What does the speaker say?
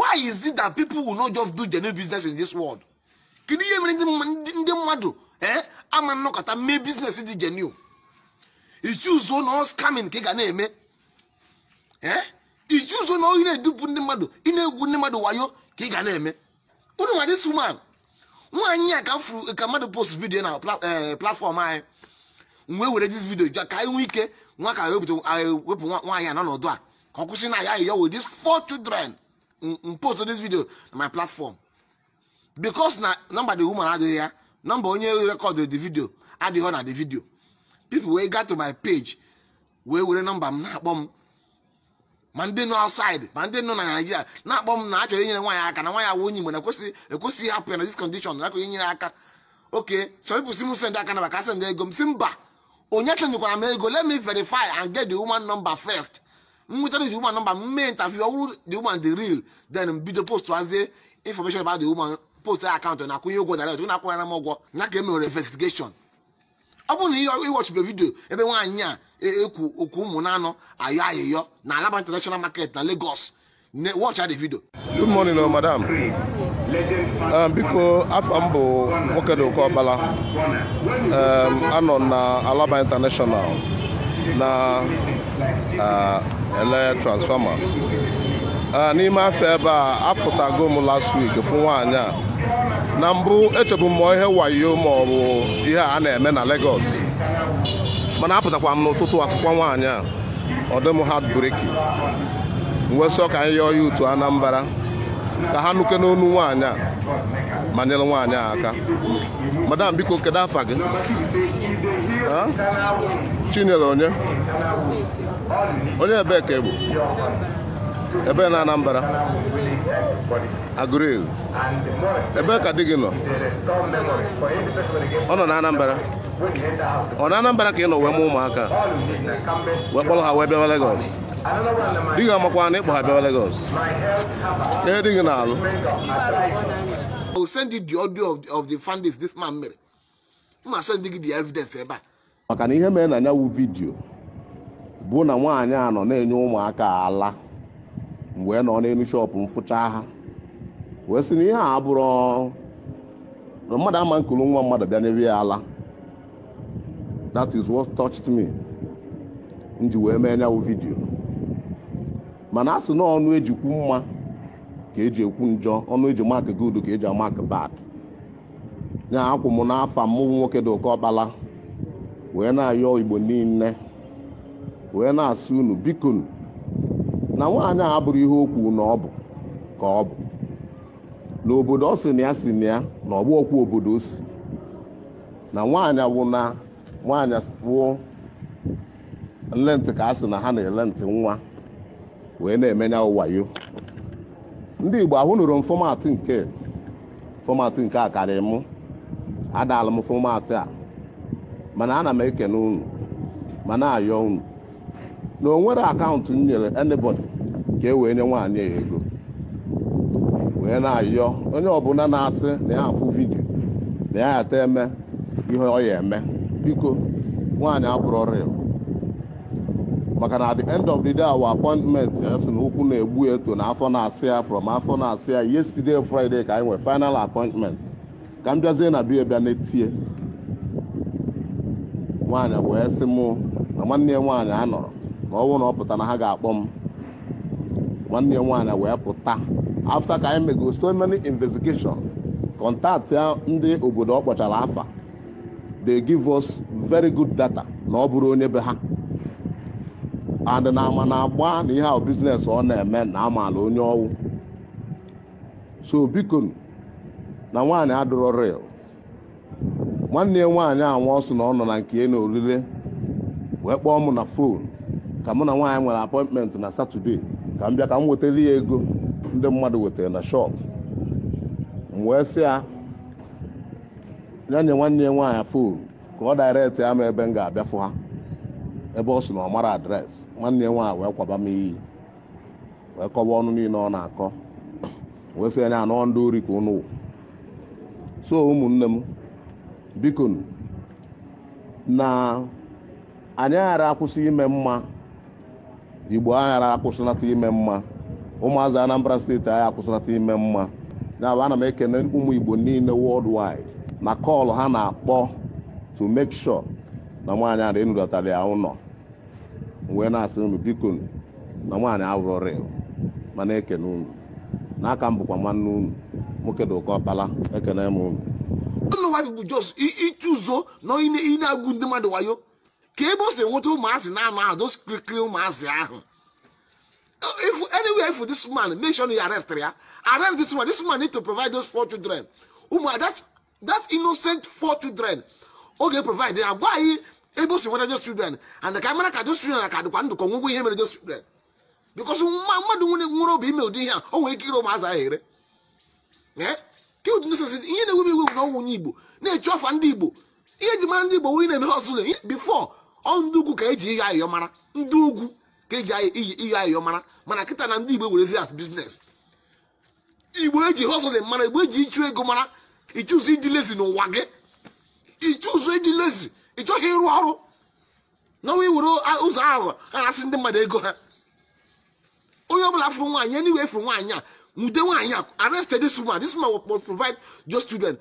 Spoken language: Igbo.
why is it that people will not just do genuine business in this world kedu ihe nwere ndị mmadụ ee ama nnọkọta mee biznes dị genuine ichuzo na scamming ka ị na-eme ee ichuzo na ị na-edupụ ndị mmadụ ị na-egwu ndị mmadụ wayo ka ị na-eme onye ma this woman nwaanyị a ka furu ka mmadụ post video na eh, platform anyị mgbe were dis ka anyị ike nwa ka wepụ nwaanyị a a ka ọ kwụsị na ya ya four children post this video na my platform because na nọmba the woman adịghị ya number onye rekọdịrị the video adịghị na the video people wee got to my page wee were number m na-akpọ m ma ndị nọ outside ma ndị nọ na Naịjirịa na-akpọ m na achọrọ inyere nwaanyị aka na nwaanyị awụ onye Igbo na ekwesịghị hapụ ya na this condition na akụghị inyere aka oke some people si m send aka na maka send ego m si mba onye chenyekwara m ego let me verify and get the woman number first nwetara the woman nọmba mme interview ọ the woman the real then bido post hazie information about the woman post akaụntụ na-akwụnye ụgwọ direct na-akwụnyara m ụgwọ na ka emewere investigation ọ bụrụ na ihe iwọchibe vidio ebe nwaanyị a ekwu e, okwu e, ụmụ na anọ ayọ ayịyọ na alaba international market na Lagos watch the video good morning uh, madam biko afọ m bụ Nwokedoka ọbala anọ na alaba international na uh, ele transfọma ah, n'ime afọ ebe a apụtago m last week fụ nwaanyị a na mbụ echebu m ihe wayo ma ọ bụ ihe a na-eme na Lagos mana apụtakwa m n'ụtụtụ akwụkwọ nwaanyị a ọ dị m heartbreaking wesọ ka anyị yọọ ya utu Anambra ka ha nuke n'onu nwaanyị a ma nyere nwaanyị aka madam biko kedu afa gị chinyere onye onye ebe ka egbu ebe na Anambra Agụrụ ebe ka di gị nọ ọ nọ na Anambra ọ na Anambra ka ị nọ wee mụ ụmụaka wee kpọrọ ha wee bịawa Lagos di gị na ịkpọ ha bịawa Lagos ee di na-alụ Maka na ihe mere na bụ na nwaanyị a nọ na-enye ụmụaka ala mgbe nọ n'elu shọpụ mfụcha ha wee sị na ihe a bụrụ na mmadụ ama nkulu nwa mmadụ bịa n'ebe ya ala that is what touched me nji wee mee nyawụ vidiyo mana a na ọnụ ejikwu mma ka eji ekwu njọ ọnụ eji mak good ka eji amak bad nya akwụ m n'afọ m nwoke dị oke ọkpala wee na-ayọ igbo niile wee na-asị unu biko na nwaanyị a abụrụ ihe okwu na ọ bụ ka ọ bụ na obodo ọ sị na ya si na ya na ọgbụ obodo o si na nwaanyị wụ na nwaanyị wụ nlentị ka a sị na ha na-ele ntị nwa wee na-emenya ụwayo ndị igbo ahụ nụrụ m fọmatị nke fọmatị nke a karịrị mụ adala m fọmatị a mana ana m ekene unu ma na-ayọ unu na onwere akaụntụ m nyere anybody ka e wee nye nwaanyị ego wee na-ayọ onye ọbụla na-asị na ya afụ vidio na ya ata eme ihe ọ ya eme biko nwaanyị abụrụ ọrịa maka na the end of the day our appointment ya sị na ụkwụ na-egbu eto na afọ na-asị ya from afọ na-asị ya yesterday friday ka anyị nwee final appointment ka m bịazie na bia bịa na-etie nwaanyị wee sị mụ na nwanne ya nwaanyị anọrọ na ọ na ọ pụta na ha ga-akpọ m nwanne ya nwaanyị wee pụta afta ka anyị mego so many investigation kọntaktị ndị obodo ọ kpọchara afa they give us very good data na ọ bụrụ onye be ha and na ama na agba na ihe ahụ biznes ọ na-eme na amaala onye ọwụ so biko na nwaanyị adụrọ real nwanne ya a anwa ọsụ na ọ nọ na nke na orire wee kpọọ m na fon ka mụ na nwaanyị nwere apọịntmentị na satọde ka m bịa ka m nwetara ya ego ndị mmadụ wetara na shop m wee sị ya nye nwanne ya nwaanyị fon ka ọ daịrektị ya ma ebe m ga-abịa fụ ha ebe ọ sị na ọ mara adreesị nwanne ya nwaanyị wee kwaba m iyi wee kọwa ọnụ niile ọ na-akọ wee sị ya na anọ ndị ori ka ụnụ so ụmụnne m biko na anyị ghara akwụsị ime mma igbo aghara akwụsịlata ime mma ụmụazị anambra steeti anyị akwụsịlata ime mma nyabụ ana m ekene ụmụ igbo niile worldwide na kọlụ ha na-akpọ to mek sure na nwaanyị a enulatara ya ụlọ wee na-asị unu biko na nwaanyị awụrọrị mana ekene unu n'aka m bụkwa nwanne unu nwoke dị ụkọ ọkpala ekene m unu ụnụ nwaanyị bụ jos ichụzo na ị na-agụ ndị mmadụ wayo ka ebe o si nweta ụmụazị na-anụ ahụ doskirikiri ụmụazị ahụ if anywhere for this man make sure you arrest ya arrest this man this man need to provide those four children ụmụ that's that's innocent four children oge provide ya gwa anyị ebe o si nweta those children and ka mara ka those children ka dịkwa ndụ ka ọnwụgwọ ihe mere those children because nwa mmadụ nwere obi ime ụdị ihe a o nwere ike ire ụmụazị ahụ ere eh? kudnsesi e ihe na-ewebe iwewu na ọnwụ onye igbo na-echu afa ndị igbo ihe eji mara ndị igbo nwunye na-eme hosụlụ bifo ndị ugwu ka eji ihe ayọ mara ndị ugwu ka eji iyi ihe ayọ mara mana kịta na ndị igbo werezi at biznes igbo eji hustle mara igbo eji ịchụ ego mara ịchụzi ịdị lezi n'ụwa gị ịchụzụ ịdị lezi ịchọghị ịrụ ọrụ na nwa iwere ụzọ aghụghọ arasị na-asị ndị mmadụ ego ha onye ọbụla fụrụ nwaanyị enyi wee fụrụ nwaanyị a nwude nwaanyị a arrested this woman this provide those children